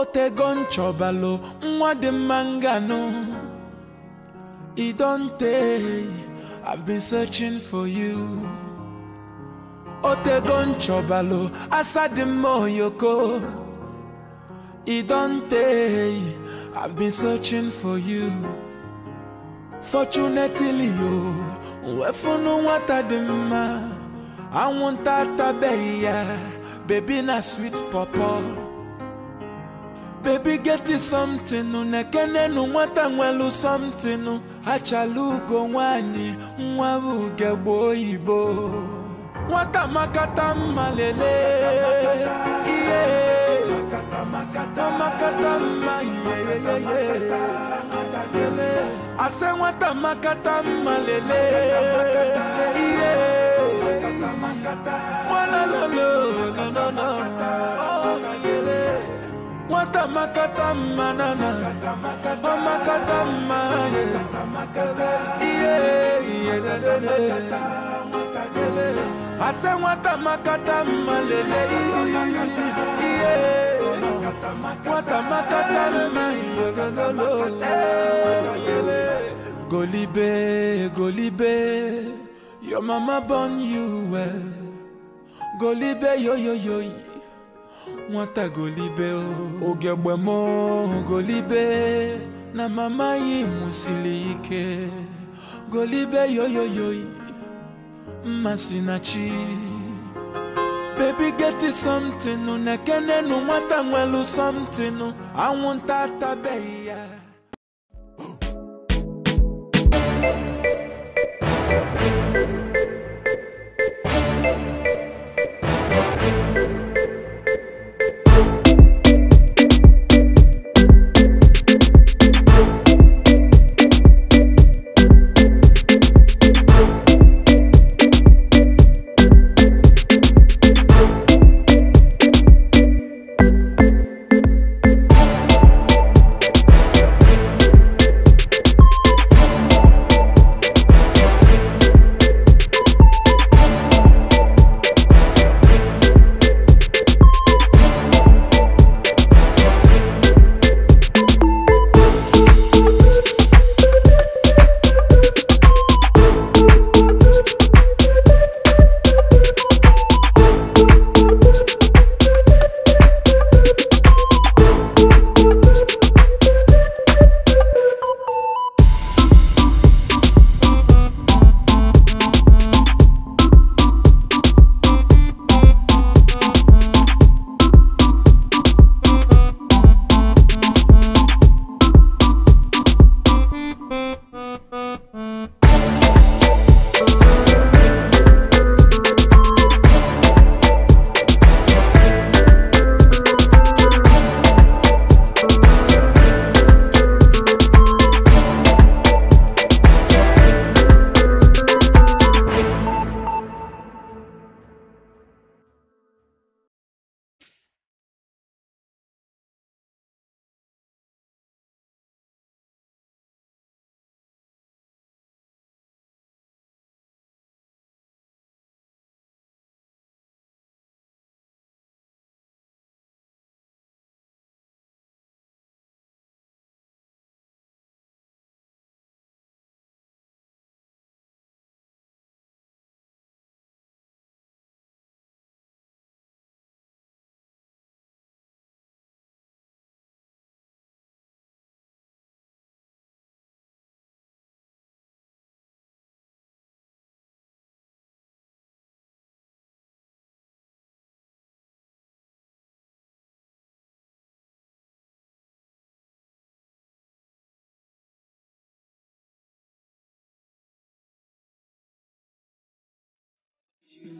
otego nchọbalụ nwa dị mma i have been searching for you otego nchọbalụ asa dị i have been searching for you fortunately o nwefunu nwata dị mma anwụnta atabeghị ya bebi na sweet pawpaw baby get you something nu nekenenu nwata nwelu something achalugo nwanyị nwa bụ ugegbe oyibo nwata makata mma lelee ihe makata mma ihe ase nwata makata mma lelee ihe nwanalolo no no no. Oh katama katama na na katama katama yeah yeah na na na ase watama katama lele yeah watama katama yeah Golibe, Golibe, your mama born you well. Golibe, yo, yo, yo. nwata golibe ogegbe m golibe na mama yi mụsiri ike golibe yoyoyoyi mmasị na chi baby get something na kenenu nwata nwelu something anwụnta atabeghị ya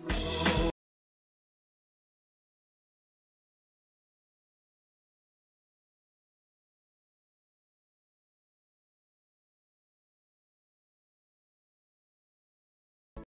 roll.